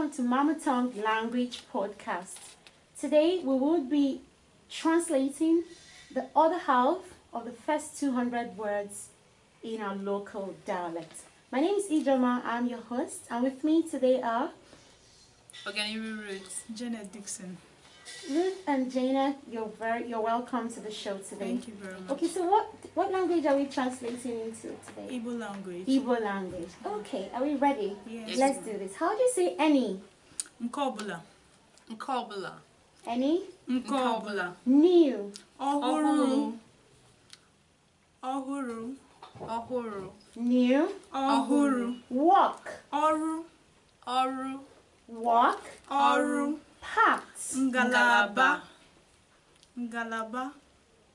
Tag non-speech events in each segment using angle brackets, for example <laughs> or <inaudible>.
welcome to Mama Tongue Language Podcast. Today we will be translating the other half of the first 200 words in our local dialect. My name is Idroma, I'm your host, and with me today are Oganiri Roots, Janet Dixon, Ruth and Jaina, you're very you're welcome to the show today. Thank you very much. Okay, so what what language are we translating into today? Igbo language. Igbo language. Okay, are we ready? Yes. Let's do this. How do you say any? Nkobula. Nkobula. Any? Nkobula. New. Ohuru. Ohuru. Ohuru. New. Ohuru. Walk. Oru. Oru. Walk. Oru. Parts. Ngalaba. Ngalaba.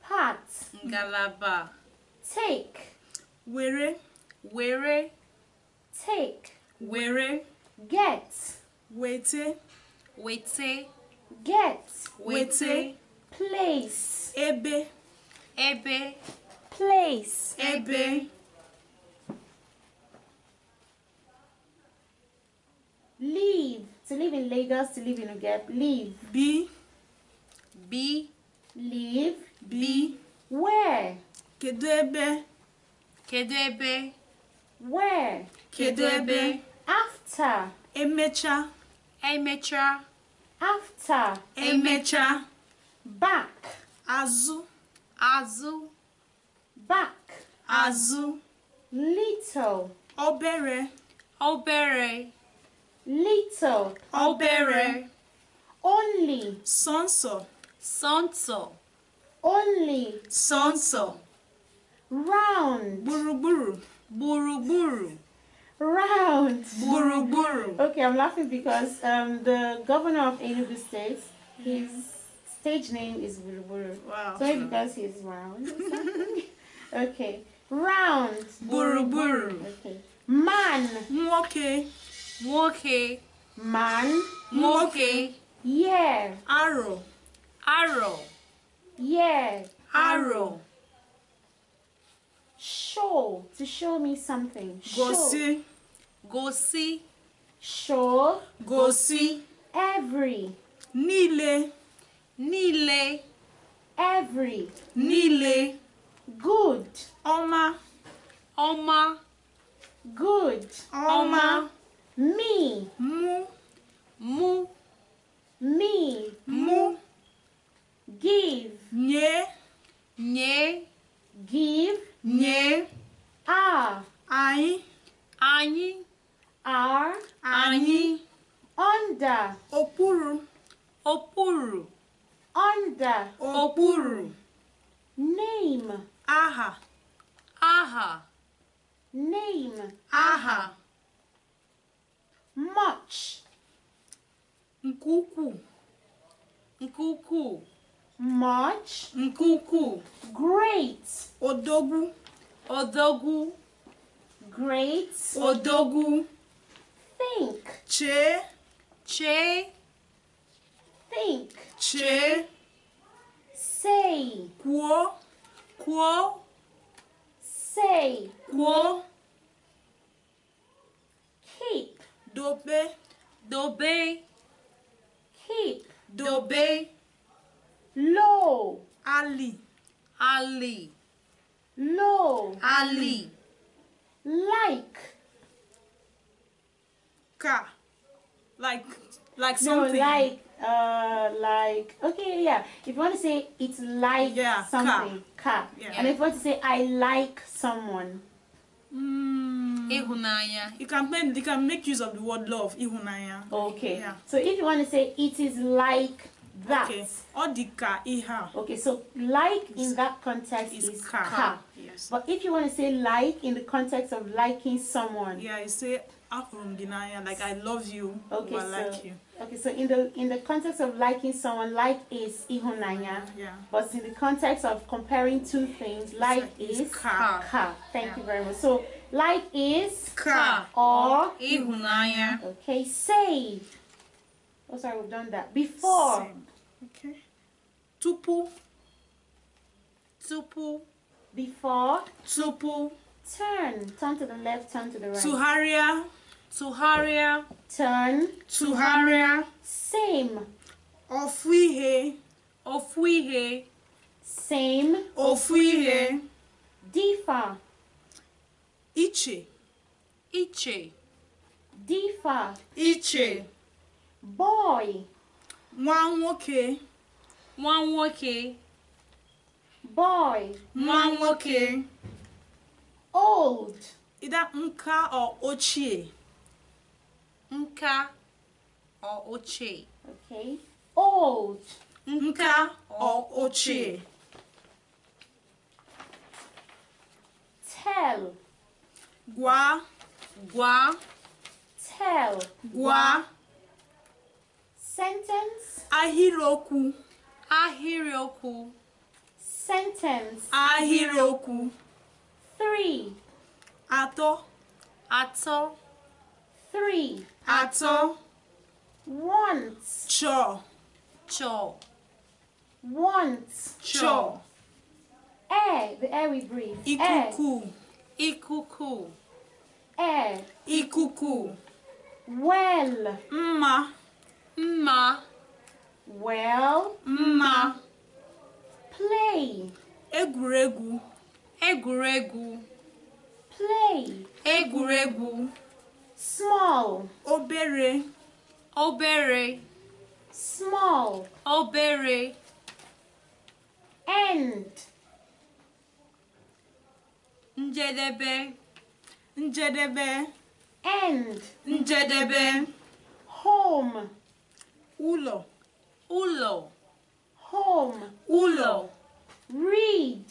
Parts. Ngalaba. Take. Were. Were. Take. Were. Get. Wete. Wete. Get. Wete. Place. Ebe. Ebe. Place. Ebe. Leave. To live in Lagos, to live in Ugep, live. Be. Be. Live. Be. Where? Kedu ebe. Kedu ebe. Where? Kedu ebe. After. Emecha. Emecha. After. Emecha. Back. Azụ. Azụ. Back. Azụ. Little. Obere. Obere. little, obere, only, sonso, sonso, only, sonso, round, buruburu, buruburu, round, buruburu. Okay, I'm laughing because um, the governor of Enugu State, his stage name is buruburu. Wow. So because he's round. <laughs> okay, round, buruburu. Okay, man, okay. Nwoke. Man. Nwoke. Yeah. Arrow. Arrow. Yeah. Arrow. Show. To show me something. Go see. Go see. Show. Go see. Every. Nile. Nile. Every. Nile. Good. Oma. Oma. Good. Oma. Oma. Me. Mu. Mu. Me. Mu. Give. Nye. Nye. Give. Nye. a. Anyị. Anyị. Are. Anyị. Under. Okpuru. Okpuru. Under. Okpuru. Name. Aha. Aha. Name. Aha. much nke ukwuu much nke great odogwu odogwu great odogwu think Che. Che. think Che. say kwuo kwuo say kwuo kick be, Dobe. do Dobe. Low. Ali. Ali. Low. Ali. Like. Ka. Like. Like something. No, like. Uh, like okay yeah if you want to say it's like yeah, something car, Yeah. and if you want to say i like someone mm, Ihunanya. You can make you can make use of the word love, ihunanya. Okay. Yeah. So if you want to say it is like that. Okay. Odika iha. Okay, so like in that context is, is ka. ka. Yes. But if you want to say like in the context of liking someone. Yeah, you say akurumginaya, like I love you. Okay. so, like you. Okay, so in the in the context of liking someone, like is ihunanya. Yeah. But in the context of comparing two things, like, like is, is ka. ka. Thank yeah. you very much. So like is ka or Okay, say. Oh, sorry, we've done that before. Same. Okay. Tupu. Tupu. Before. Tupu. Turn. Turn to the left. Turn to the right. Tuharia. Tuharia. Turn. Tuharia. Same. Ofwihe. Ofwihe. Same. Ofwihe. Difa. iche iche difa iche boy nwa nwoke nwa nwoke boy nwa nwoke old ida nka ọ ochie nka ọ ochie okay old nka ọ ochie tell Gua. Gua. Tell. Gua. Sentence. Ahiroku, ahiroku. Sentence. Ahiroku. Three. Ato. Ato. Three. Ato. Once. Cho. Cho. Once. Cho. Air. The air we breathe. Ikuku. Air. ikuku e. ikuku well mma mma well mma play egwuregwu egwuregwu play egwuregwu small obere obere small obere end njedebe njedebe end njedebe home ụlọ ụlọ home ụlọ read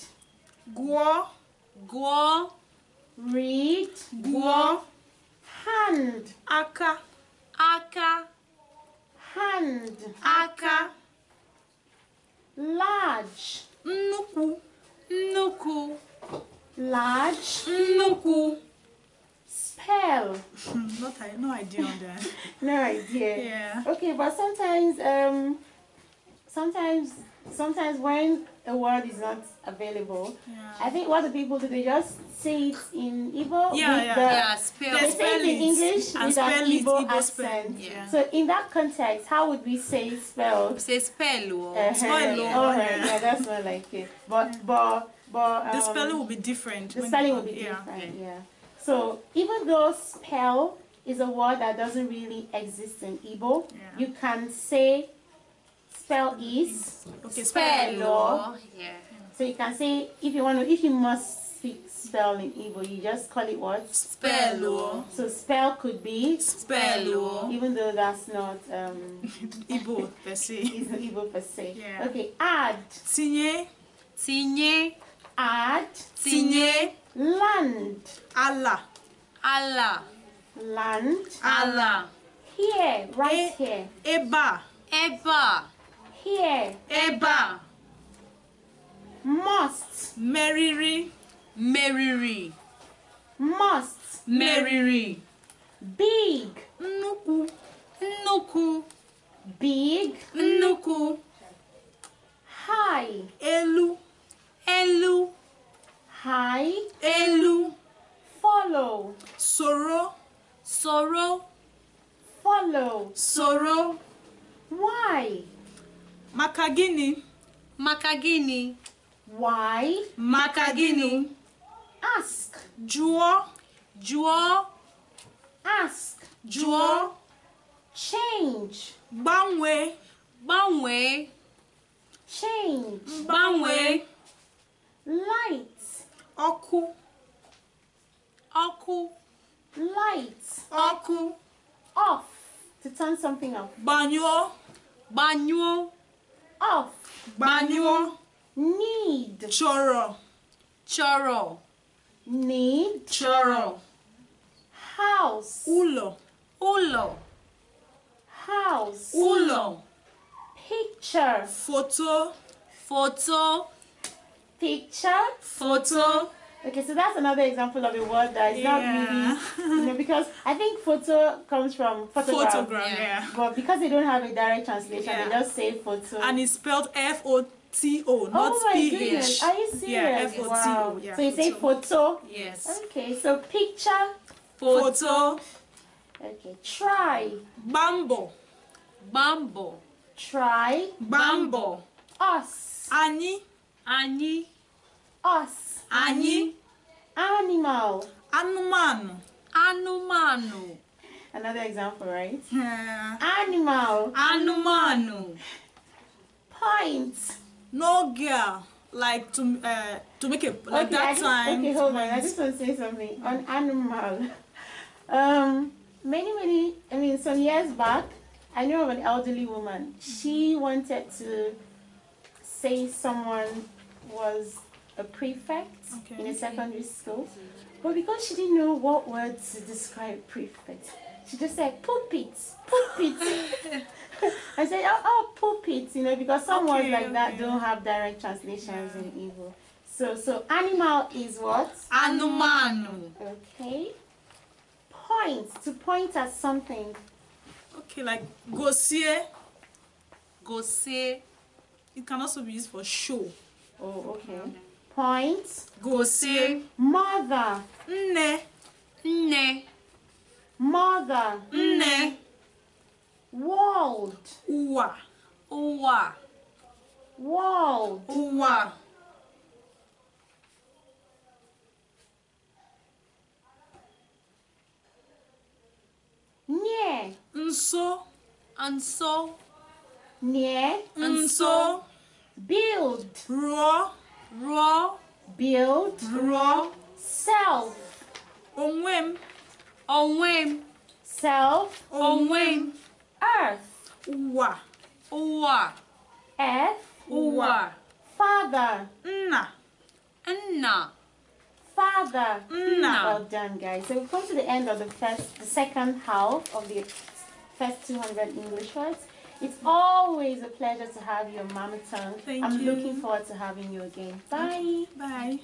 gụọ gụọ read gụọ hand aka aka hand aka large nnukwu nnukwu large nuku spell <laughs> not I, no idea on that <laughs> no idea yeah okay but sometimes um sometimes sometimes when a word is not available, yeah. I think what the people do, they just say it in Igbo. Yeah, with yeah, the, yeah. Spell, they say it in English and with an Igbo, accent. Yeah. So in that context, how would we say spell? Say spell or oh, uh-huh. spell. Oh, oh, yeah. yeah, that's more like it. But but but um, the spelling will be different. The spelling will be different. yeah. So even though spell is a word that doesn't really exist in Igbo. Yeah. You can say spell is okay, spello. Yeah. So you can say if you want to, if you must speak spell in Igbo, you just call it what? Spell So spell could be spell even though that's not um <laughs> Igbo per se. It's <laughs> not Igbo per se. Yeah. Okay, add. Tinye. Tinye. Add. Tinye. Land. Allah. Allah. Land. Allah. Here, right e here. Eba. Eba here. Ebe Must. Meriri. Meriri. Must. Meriri. Big. Nuku. Nuku. Big. Nuku. High. Elu. Elu. High. Elu. Follow. Soro. Soro. Follow. Soro. Why? Maka gịnị? Maka gịnị? Why? Maka gịnị? Ask. Jụọ. Jụọ. Ask. Jụọ. Change. Gbanwee. Gbanwee. Change. Gbanwee. Light. Ọkụ. Ọkụ. Light. Ọkụ. Off. To turn something off. Gbanyụọ. Gbanyụọ of gbaniwo need chọrọ chọrọ need chọrọ house ụlọ ụlọ house ụlọ picture foto foto picture foto. Okay, so that's another example of a word that is yeah. not really, you know, because I think photo comes from photograph. Photograph, yeah. But because they don't have a direct translation, yeah. they just say photo. And it's spelled F O T O, not oh my P H. Are you serious? Yeah, F O T O. so you say photo. Yes. Okay, so picture. Photo. photo. Okay, try. Bambo. Bambo. Try. Bambo. Us. Ani. Ani. Us. Ani. Animal. Anumano. Anumano. Another example, right? Yeah. Animal. Anumano. Point. No girl. Like to uh, to make it like okay, that time. Okay, hold on. I just want to say something on animal. <laughs> Um, many many. I mean, some years back, I knew of an elderly woman. She wanted to say someone was a prefect okay. in a secondary school. Mm-hmm. But because she didn't know what words to describe prefect, she just said pulpit, pulpit. <laughs> I said, oh, oh, pulpit, you know, because some okay, words like okay. that don't have direct translations yeah. in Igbo. So, so animal is what? Anumanu. Okay. Point, to point at something. Okay, like gosie. Gosie. It can also be used for show. Oh, okay. Mm-hmm. Points. Gosi. Mother. Nne. Nne. Mother. Nne. World. Uwa. Uwa. World. Uwa. Nie. Nso. Nso. Nie. Nso. Build. Raw. Raw. Build. Raw. Self. Onwe m. Onwe m. Self. Onwe m. Earth. Ụwa. Ụwa. Earth. Ụwa. Father. Nna. Nna. Father. Nna. Well done, guys. So we've come to the end of the first, the second half of the first 200 English words. It's always a pleasure to have you, Mama Tongue. Thank I'm you. looking forward to having you again. Bye. Bye.